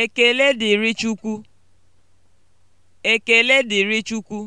Ekele dịrị Chukwu. Ekele dịrị Chukwu.